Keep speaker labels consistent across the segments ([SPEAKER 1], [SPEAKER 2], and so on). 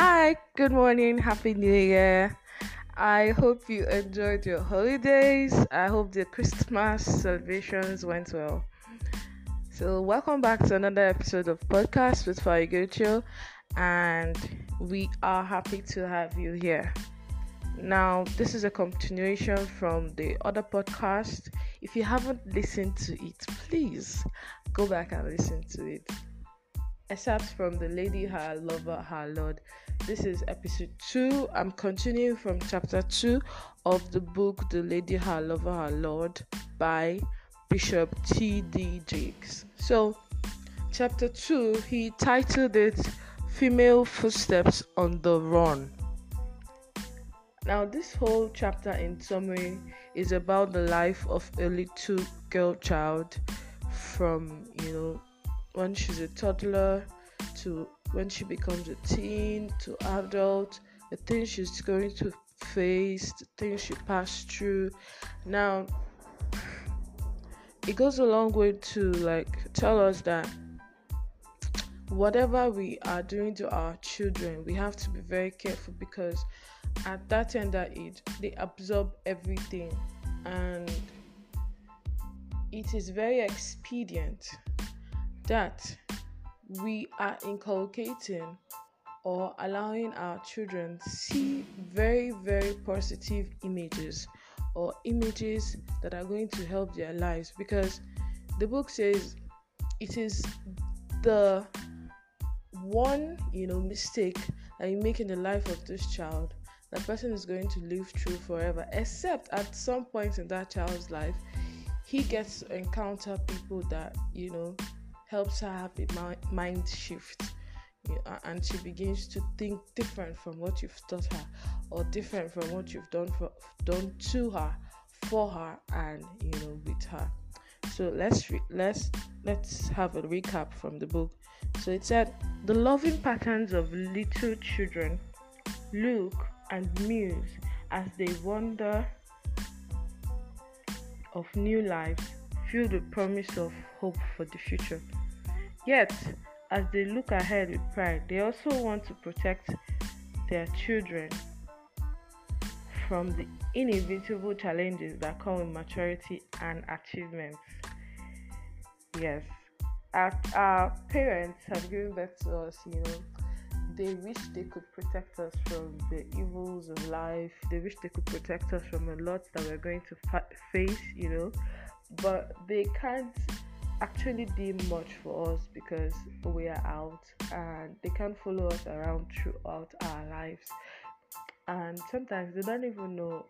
[SPEAKER 1] Hi, good morning, happy new year. I hope you enjoyed your holidays. I hope the Christmas celebrations went well. So, welcome back to another episode of podcast with Farigucho, and we are happy to have you here. Now, this is a continuation from the other podcast. If you haven't listened to it, please go back and listen to it excerpts from The Lady, Her Lover, Her Lord. This is episode 2. I'm continuing from chapter 2 of the book The Lady, Her Lover, Her Lord by Bishop T.D. Jakes. So, chapter 2, he titled it Female Footsteps on the Run. Now, this whole chapter, in summary, is about the life of a little girl child from, you know, when she's a toddler to when she becomes a teen to adult, the things she's going to face, the things she passed through. Now, it goes a long way to like tell us that whatever we are doing to our children, we have to be very careful because at that tender age, they absorb everything and it is very expedient that we are inculcating or allowing our children see very very positive images or images that are going to help their lives because the book says it is the one you know mistake that you make in the life of this child that person is going to live through forever except at some point in that child's life he gets to encounter people that you know helps her have a mind shift and she begins to think different from what you've taught her or different from what you've done for, done to her for her and you know with her so let's re- let's let's have a recap from the book so it said the loving patterns of little children look and muse as they wonder of new life filled with promise of hope for the future. Yet, as they look ahead with pride, they also want to protect their children from the inevitable challenges that come with maturity and achievements. Yes, our, our parents have given birth to us, you know. They wish they could protect us from the evils of life. They wish they could protect us from a lot that we're going to fa- face, you know. but they can't actually did much for us because we are out and they can't follow us around throughout our lives and sometimes they don't even know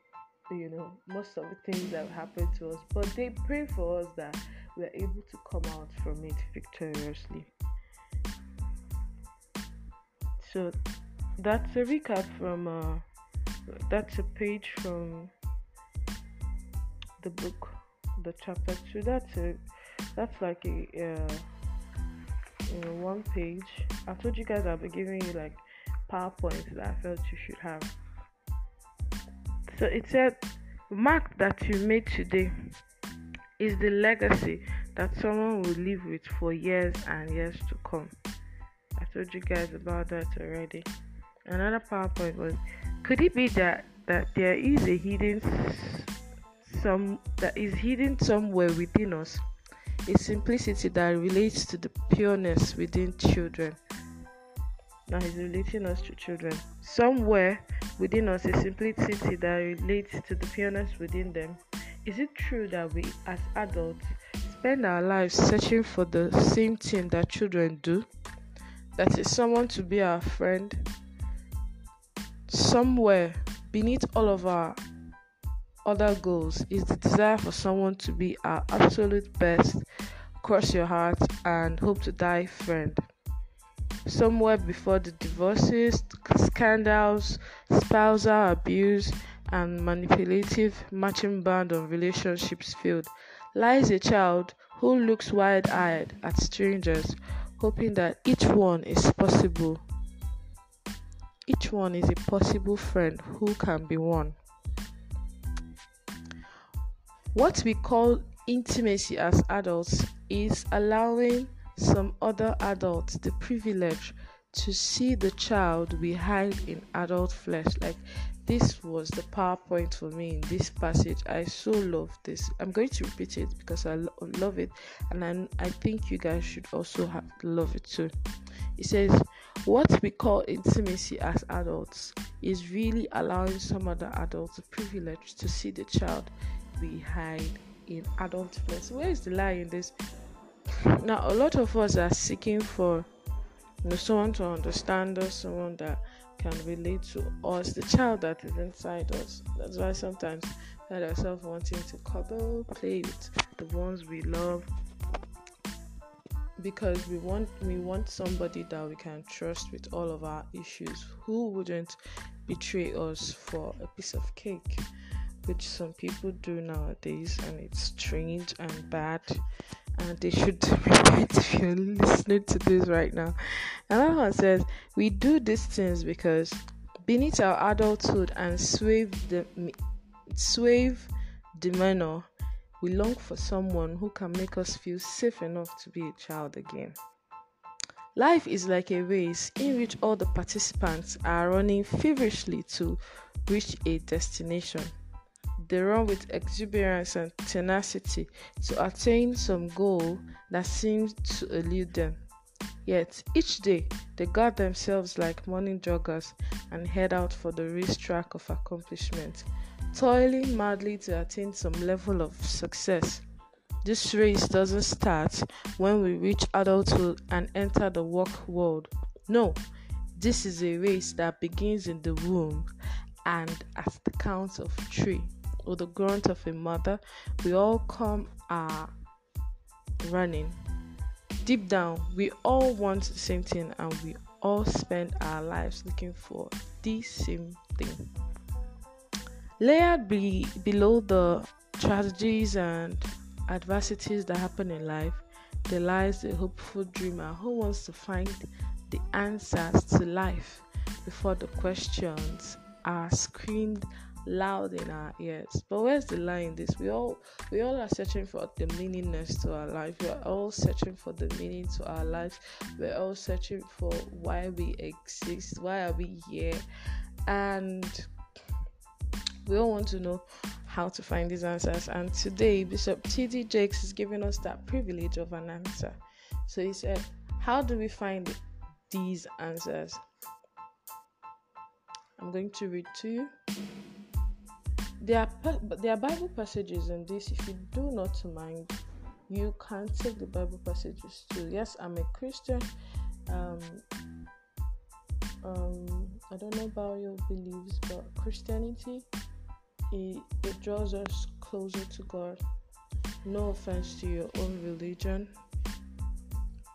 [SPEAKER 1] you know most of the things that happen to us but they pray for us that we are able to come out from it victoriously so that's a recap from uh, that's a page from the book the chapter two. That's a that's like a uh, one page. I told you guys I'll be giving you like PowerPoints that I felt you should have. So it said, mark that you made today is the legacy that someone will live with for years and years to come. I told you guys about that already. Another PowerPoint was, could it be that that there is a hidden some that is hidden somewhere within us, a simplicity that relates to the pureness within children. That is relating us to children. Somewhere within us, a simplicity that relates to the pureness within them. Is it true that we, as adults, spend our lives searching for the same thing that children do? That is someone to be our friend. Somewhere beneath all of our other goals is the desire for someone to be our absolute best, cross your heart, and hope to die friend. Somewhere before the divorces, scandals, spousal abuse, and manipulative matching band on relationships field lies a child who looks wide eyed at strangers, hoping that each one is Each one is a possible friend who can be one. What we call intimacy as adults is allowing some other adults the privilege to see the child we hide in adult flesh. Like this was the PowerPoint for me in this passage. I so love this. I'm going to repeat it because I lo- love it, and I, I think you guys should also have, love it too. It says, What we call intimacy as adults is really allowing some other adults the privilege to see the child we hide in adult flesh. Where is the lie in this? Now, a lot of us are seeking for you know, someone to understand us, someone that can relate to us, the child that is inside us. That's why sometimes we find ourselves wanting to cuddle, play with the ones we love, because we want we want somebody that we can trust with all of our issues who wouldn't betray us for a piece of cake which some people do nowadays, and it's strange and bad. And they should repent if you're listening to this right now. Another one says, We do these things because beneath our adulthood and suave, the suave demeanor, we long for someone who can make us feel safe enough to be a child again. Life is like a race in which all the participants are running feverishly to reach a destination. They run with exuberance and tenacity to attain some goal that seems to elude them. Yet each day they guard themselves like morning joggers and head out for the race track of accomplishment, toiling madly to attain some level of success. This race doesn't start when we reach adulthood and enter the work world. No, this is a race that begins in the womb and at the count of three. or the grunt of a mother, we all come are running. Deep down, we all want the same thing and we all spend our lives looking for the same thing. Layered be, below the tragedies and adversities that happen in life, there lies a hopeful dreamer who wants to find the answers to life before the questions are screened. loud in our ears. But where's the lie in this? We all we all are searching for the meaningness to our life. We're all searching for the meaning to our lives. We're all searching for why we exist. Why are we here? And we all want to know how to find these answers. And today, Bishop T.D. Jakes is giving us that privilege of an answer. So he said, How do we find these answers? I'm going to read to you There are, Bible passages in this. If you do not mind, you can take the Bible passages too. Yes, I'm a Christian. Um, um, I don't know about your beliefs, but Christianity it, it draws us closer to God. No offense to your own religion,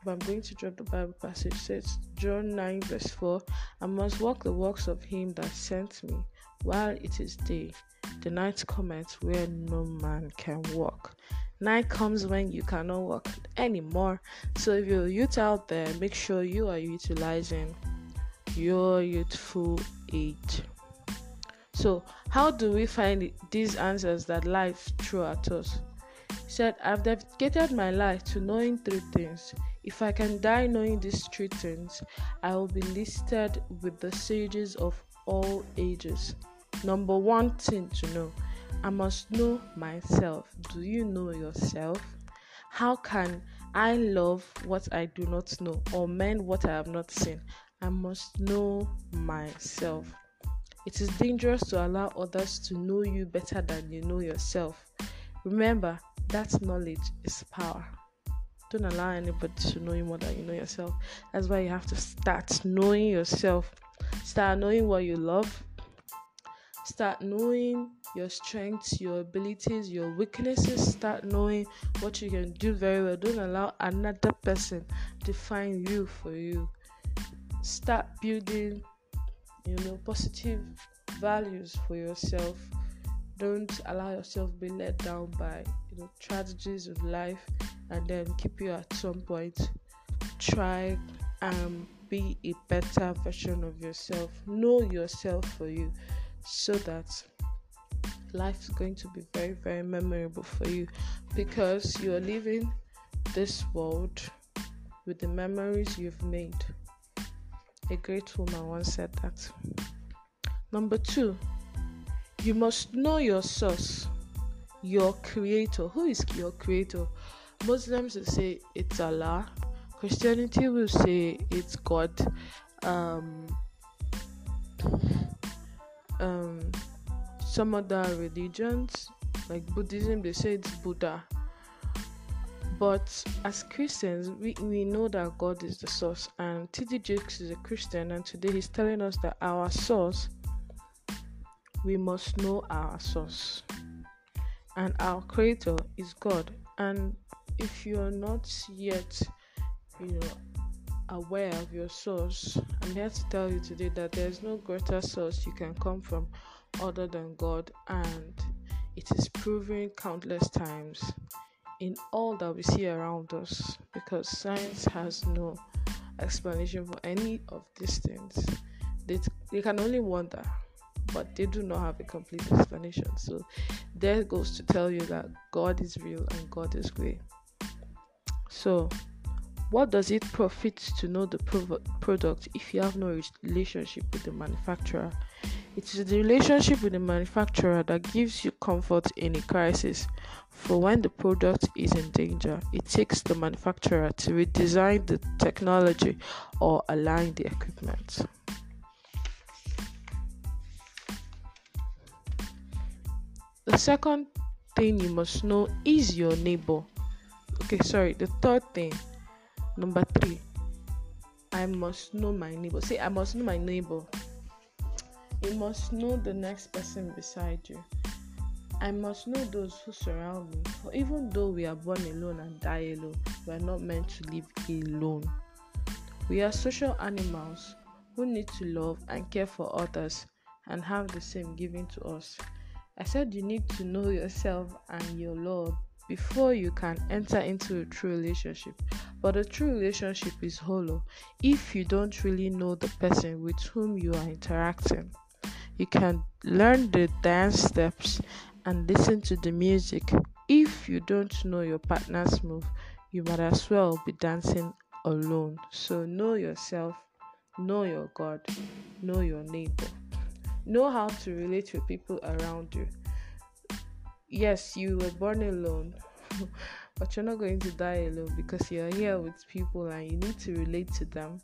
[SPEAKER 1] but I'm going to drop the Bible passage. It says John 9, verse 4 I must walk the works of him that sent me while it is day. The night cometh where no man can walk. Night comes when you cannot walk anymore. So if you're youth out there, make sure you are utilizing your youthful age. So, how do we find these answers that life threw at us? He said, I've dedicated my life to knowing three things. If I can die knowing these three things, I will be listed with the sages of all ages. Number one thing to know I must know myself. Do you know yourself? How can I love what I do not know or mend what I have not seen? I must know myself. It is dangerous to allow others to know you better than you know yourself. Remember, that knowledge is power. Don't allow anybody to know you more than you know yourself. That's why you have to start knowing yourself. Start knowing what you love, Start knowing your strengths, your abilities, your weaknesses. Start knowing what you can do very well. Don't allow another person define you for you. Start building, you know, positive values for yourself. Don't allow yourself be let down by you know tragedies of life and then keep you at some point. Try and be a better version of yourself. Know yourself for you. so that life is going to be very, very memorable for you because you are leaving this world with the memories you've made. A great woman once said that. Number two, you must know your source, your creator. Who is your creator? Muslims will say it's Allah, Christianity will say it's God. Um, um, some other religions, like Buddhism, they say it's Buddha. But as Christians, we, we know that God is the source, and T.D. Jakes is a Christian, and today he's telling us that our source, we must know our source, and our Creator is God. And if you're not yet, aware of your source. I'm here to tell you today that there is no greater source you can come from other than God, and it is proven countless times in all that we see around us because science has no explanation for any of these things. They, t- they can only wonder, but they do not have a complete explanation. So, there goes to tell you that God is real and God is great. So, What does it profit to know the product if you have no relationship with the manufacturer? It is the relationship with the manufacturer that gives you comfort in a crisis. For when the product is in danger, it takes the manufacturer to redesign the technology or align the equipment. The second thing you must know is your neighbor. Okay, sorry, the third thing Number three, I must know my neighbor. Say, I must know my neighbor. You must know the next person beside you. I must know those who surround me. For even though we are born alone and die alone, we are not meant to live alone. We are social animals who need to love and care for others and have the same given to us. I said you need to know yourself and your Lord before you can enter into a true relationship. But a true relationship is hollow if you don't really know the person with whom you are interacting. You can learn the dance steps and listen to the music. If you don't know your partner's move, you might as well be dancing alone. So know yourself, know your God, know your neighbor. Know how to relate with people around you yes, you were born alone, but you're not going to die alone because you're here with people and you need to relate to them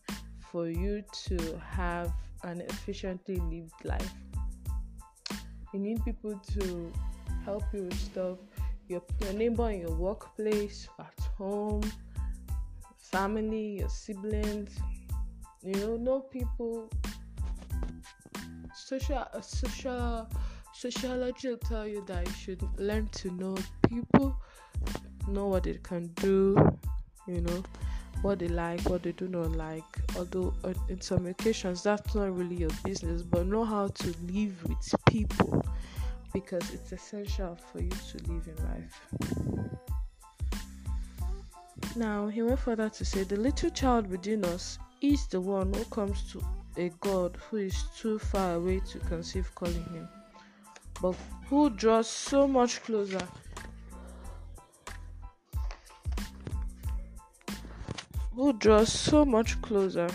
[SPEAKER 1] for you to have an efficiently lived life. You need people to help you with stuff your, your neighbor in your workplace, at home, family, your siblings. You know, know people. Social, uh, social Sociology will tell you that you should learn to know people, know what they can do, you know, what they like, what they do not like. Although, uh, in some occasions, that's not really your business, but know how to live with people because it's essential for you to live in life. Now, he went further to say, The little child within us is the one who comes to a God who is too far away to conceive calling him. But who draws so much closer? Who draws so much closer?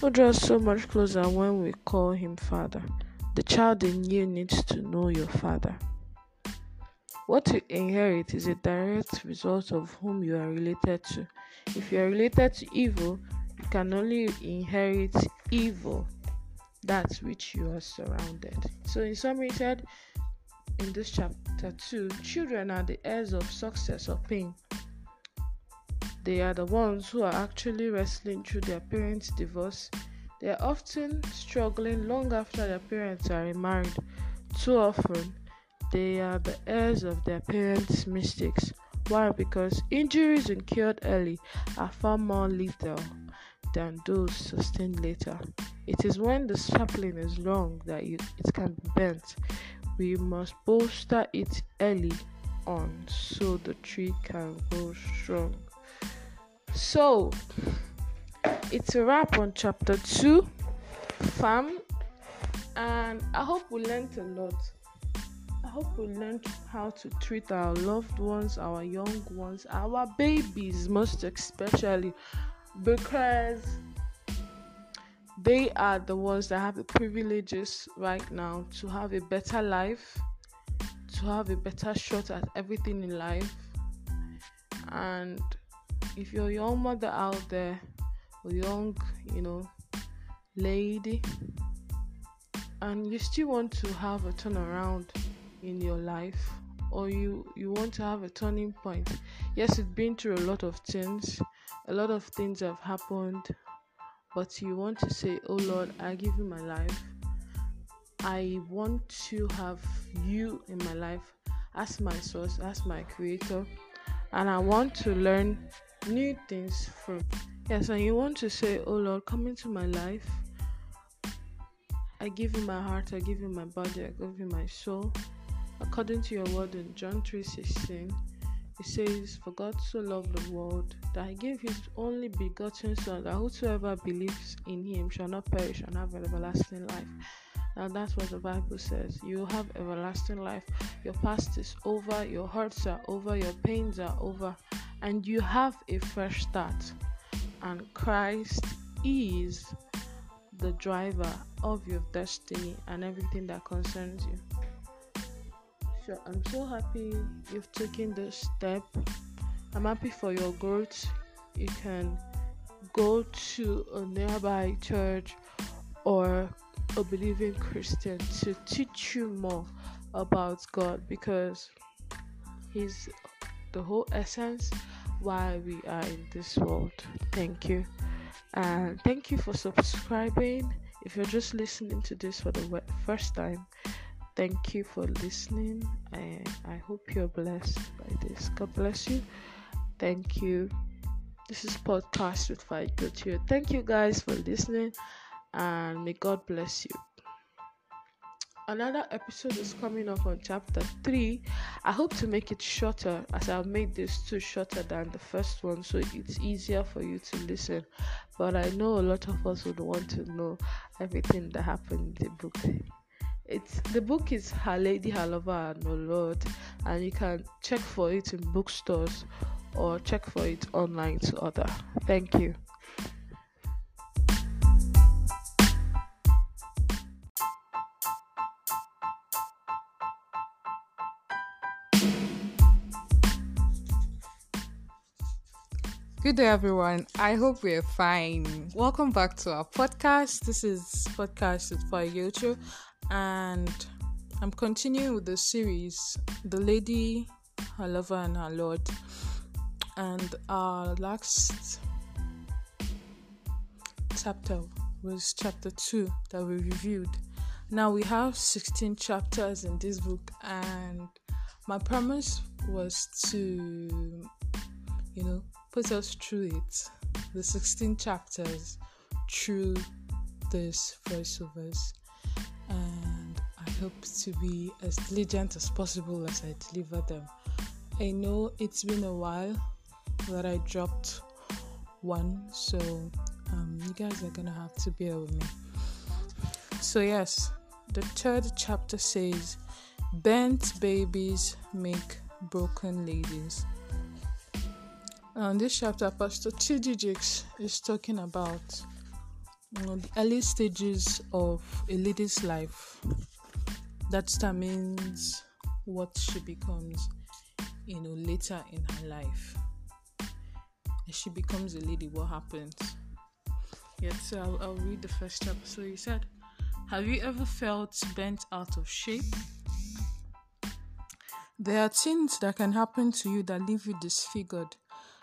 [SPEAKER 1] who draws so much closer when we call him Father. The child in you needs to know your Father. What you inherit is a direct result of whom you are related to. If you are related to evil, you can only inherit evil, that which you are surrounded. So, in summary, said in this chapter 2 children are the heirs of success or pain. They are the ones who are actually wrestling through their parents' divorce. They are often struggling long after their parents are remarried. Too often, they are the heirs of their parents' mistakes. Why? Because injuries incurred early are far more lethal than those sustained later. It is when the sapling is long that you, it can be bent. We must bolster it early on so the tree can grow strong. So, it's a wrap on chapter 2 fam and I hope we learned a lot. I hope we learned how to treat our loved ones, our young ones, our babies, most especially, because they are the ones that have the privileges right now to have a better life, to have a better shot at everything in life. And if you're a young mother out there, or young, you know, lady, and you still want to have a turnaround, in your life or you you want to have a turning point yes you've been through a lot of things a lot of things have happened but you want to say oh lord i give you my life i want to have you in my life as my source as my creator and i want to learn new things from yes and you want to say oh lord come into my life i give you my heart i give you my body i give you my soul According to your word in John 16 it says, For God so loved the world that he gave his only begotten Son, that whosoever believes in him shall not perish and have everlasting life. Now that's what the Bible says. You have everlasting life. Your past is over, your hurts are over, your pains are over, and you have a fresh start. And Christ is the driver of your destiny and everything that concerns you. sure I'm so happy you've taken this step. I'm happy for your growth. You can go to a nearby church or a believing Christian to teach you more about God because He's the whole essence why we are in this world. Thank you. And thank you for subscribing. If you're just listening to this for the first time, Thank you for listening. I, I hope you're blessed by this. God bless you. Thank you. This is Podcast with Fight Gotio. Thank you guys for listening and may God bless you. Another episode is coming up on chapter 3. I hope to make it shorter as I've made this two shorter than the first one so it's easier for you to listen. But I know a lot of us would want to know everything that happened in the book. It's the book is Her Lady, Her Lover, and Her Lord, and you can check for it in bookstores or check for it online to order. Thank you. Good day, everyone. I hope we're fine. Welcome back to our podcast. This is Podcast with Fire and I'm continuing with the series The Lady, Her Lover, and Her Lord. And our last chapter was chapter 2 that we reviewed. Now we have 16 chapters in this book, and my promise was to, you know, put us through it the 16 chapters through this voiceovers. hope to be as diligent as possible as I deliver them. I know it's been a while that I dropped one, so um, you guys are gonna have to bear with me. So, yes, the third chapter says, Bent babies make broken ladies. Now, in this chapter, Pastor Chidijiks is talking about you know, the early stages of a lady's life that determines what she becomes, you know, later in her life. As she becomes a lady, what happens? yes so I'll, I'll read the first chapter. So he said, Have you ever felt bent out of shape? There are things that can happen to you that leave you disfigured.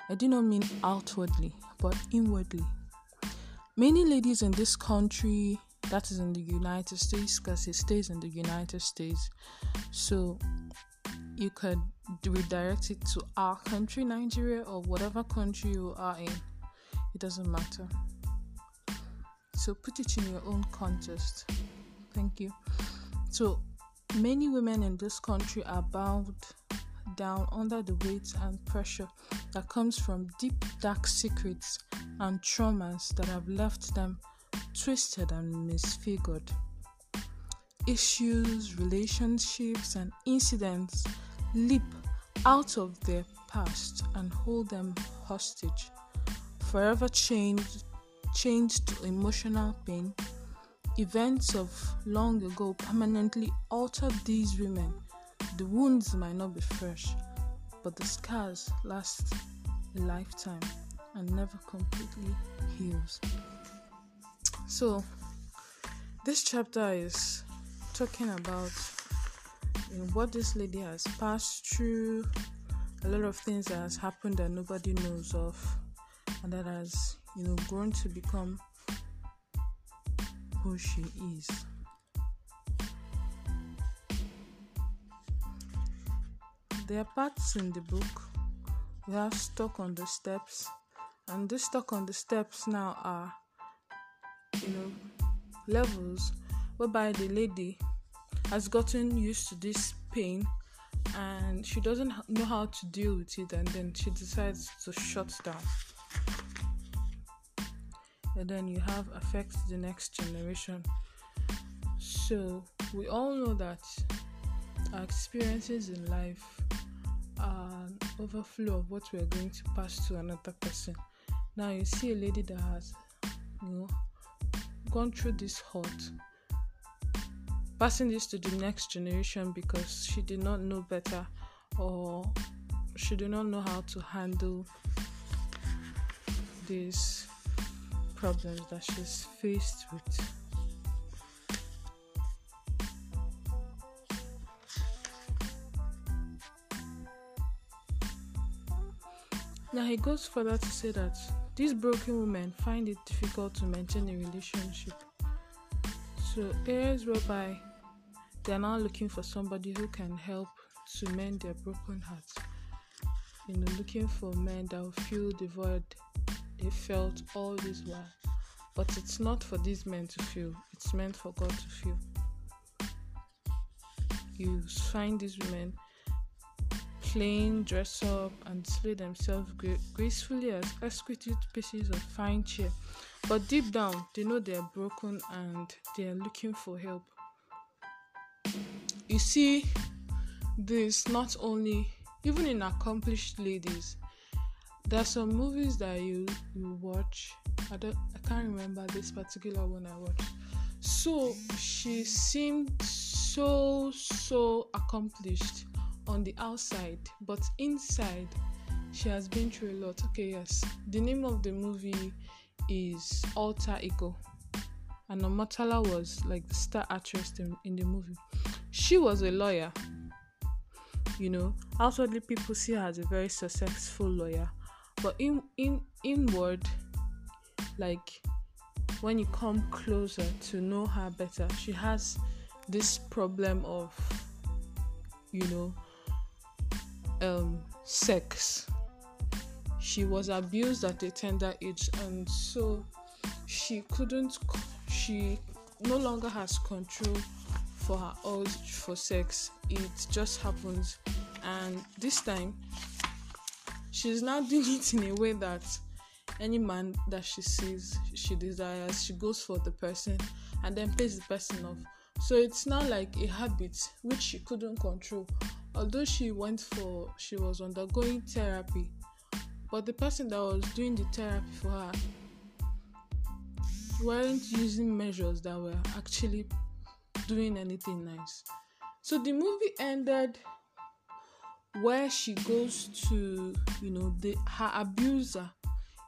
[SPEAKER 1] I do not mean outwardly, but inwardly. Many ladies in this country that is in the United States because it stays in the United States. So you could redirect it to our country, Nigeria, or whatever country you are in. It doesn't matter. So put it in your own context. Thank you. So many women in this country are bound down under the weight and pressure that comes from deep, dark secrets and traumas that have left them twisted and misfigured. Issues, relationships, and incidents leap out of their past and hold them hostage, forever changed, changed to emotional pain. Events of long ago permanently altered these women. The wounds might not be fresh, but the scars last a lifetime and never completely heals. So, this chapter is talking about what this lady has passed through, a lot of things that has happened that nobody knows of, and that has you know grown to become who she is. There are parts in the book we have stuck on the steps, and this stuck on the steps now are you know levels whereby the lady has gotten used to this pain and she doesn't know how to deal with it and then she decides to shut down and then you have affect the next generation so we all know that our experiences in life are an overflow of what we are going to pass to another person now you see a lady that has you know gone through this hurt, passing this to the next generation because she did not know better or she did not know how to handle these problems that she's faced with. Now he goes further to say that These broken women find it difficult to maintain a relationship. So, areas whereby they are now looking for somebody who can help to mend their broken hearts. You know, looking for men that will fill the void they felt all this while. But it's not for these men to feel it's meant for God to feel You find these women clean, dress up, and display themselves gra- gracefully as exquisite pieces of fine cheer. But deep down, they know are broken and are looking for help. You see, this not only even in accomplished ladies. There are some movies that you you watch. I don't I can't remember this particular one I watched. So she seemed so so accomplished on the outside, but inside, she has been through a lot. Okay, yes. The name of the movie is Alter Ego. And Omatala was like the star actress in, in the movie. She was a lawyer. You know, outwardly people see her as a very successful lawyer, but in in inward, like when you come closer to know her better, she has this problem of you know um, sex. She was abused at a tender age, and so she couldn't, she no longer has control for her urge for sex. It just happens, and this time she's now doing it in a way that any man that she sees, she desires, she goes for the person and then pays the person off. So it's now like a habit which she couldn't control although she went for she was undergoing therapy but the person that was doing the therapy for her weren't using measures that were actually doing anything nice so the movie ended where she goes to you know the her abuser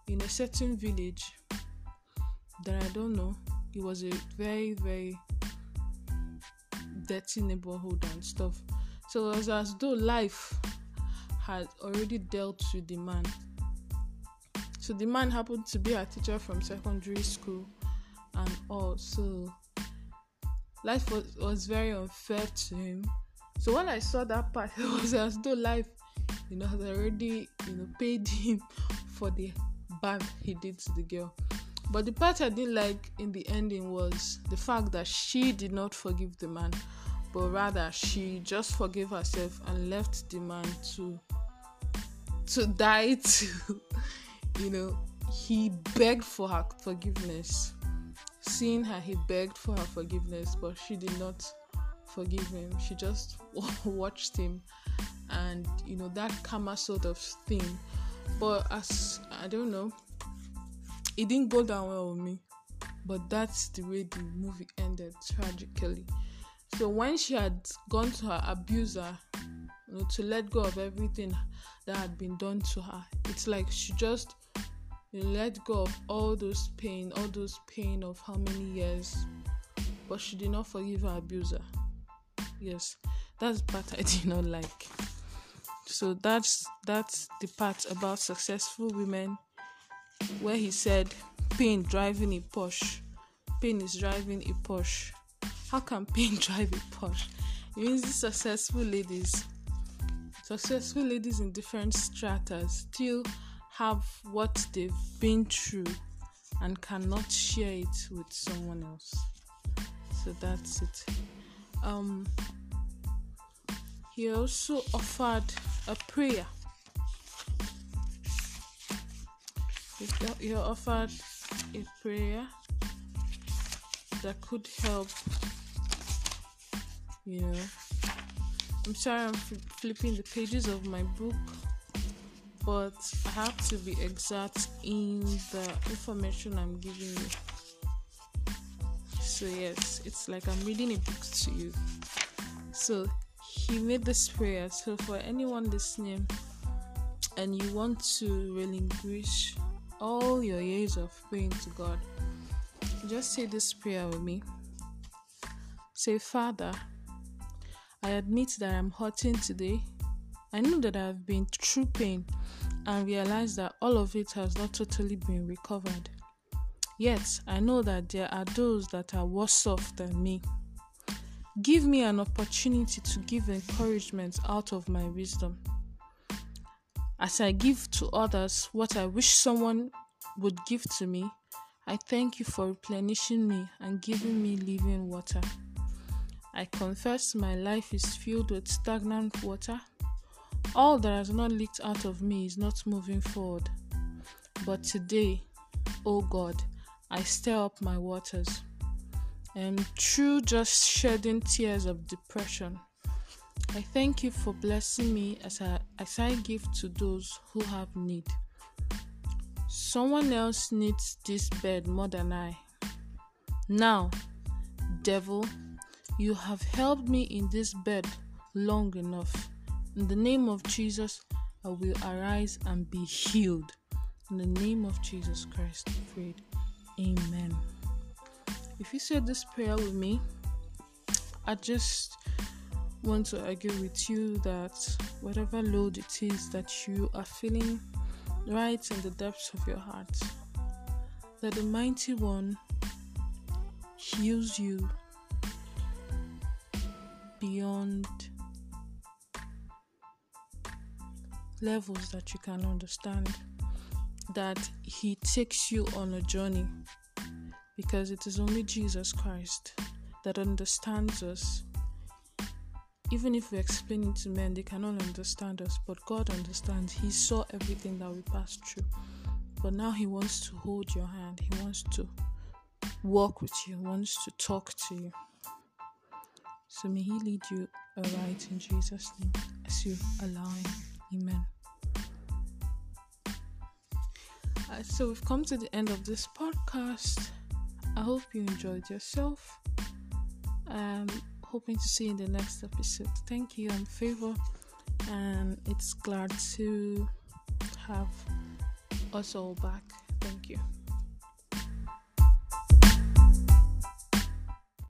[SPEAKER 1] in a certain village that i don't know it was a very very dirty neighborhood and stuff So it was as though life had already dealt with the man. So the man happened to be a teacher from secondary school and all. So life was, was very unfair to him. So when I saw that part, it was as though life, you know, had already, you know, paid him for the bad he did to the girl. But the part I didn't like in the ending was the fact that she did not forgive the man but rather she just forgave herself and left the man to to die to you know he begged for her forgiveness seeing her he begged for her forgiveness but she did not forgive him she just watched him and you know that karma sort of thing but as i don't know it didn't go down well with me but that's the way the movie ended tragically So when she had gone to her abuser you know, to let go of everything that had been done to her, it's like she just you know, let go of all those pain, all those pain of how many years, but she did not forgive her abuser. Yes, that's part I did not like. So that's that's the part about successful women, where he said, "Pain driving a push, pain is driving a push." How can pain drive a push? It means these successful ladies, successful ladies in different strata, still have what they've been through and cannot share it with someone else. So that's it. Um, he also offered a prayer. He offered a prayer that could help you know. I'm sorry I'm flipping the pages of my book, but I have to be exact in the information I'm giving you. So, yes, it's like I'm reading a book to you. So, he made this prayer. So, for anyone listening and you want to relinquish all your years of praying to God, just say this prayer with me. Say, Father, I admit that I'm hurting today. I know that I've been through pain and realize that all of it has not totally been recovered. Yet, I know that there are those that are worse off than me. Give me an opportunity to give encouragement out of my wisdom. As I give to others what I wish someone would give to me, I thank you for replenishing me and giving me living water. I confess my life is filled with stagnant water. All that has not leaked out of me is not moving forward. But today, O oh God, I stir up my waters. And through just shedding tears of depression, I thank you for blessing me as I, as I give to those who have need. Someone else needs this bed more than I. Now, devil, You have helped me in this bed long enough. In the name of Jesus, I will arise and be healed. In the name of Jesus Christ, I prayed. Amen. If you said this prayer with me, I just want to argue with you that whatever load it is that you are feeling right in the depths of your heart, that the mighty one heals you beyond levels that you can understand. That He takes you on a journey because it is only Jesus Christ that understands us. Even if we explain it to men, they cannot understand us, but God understands. He saw everything that we passed through. But now He wants to hold your hand, He wants to walk with you, He wants to talk to you. So may He lead you aright in Jesus' name as you allow Him. Amen. Uh, so we've come to the end of this podcast. I hope you enjoyed yourself. Um, hoping to see you in the next episode. Thank you. I'm Favor, and it's glad to have us all back. Thank you.